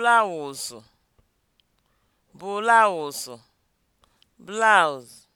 blaụzụ blaụzụ blouse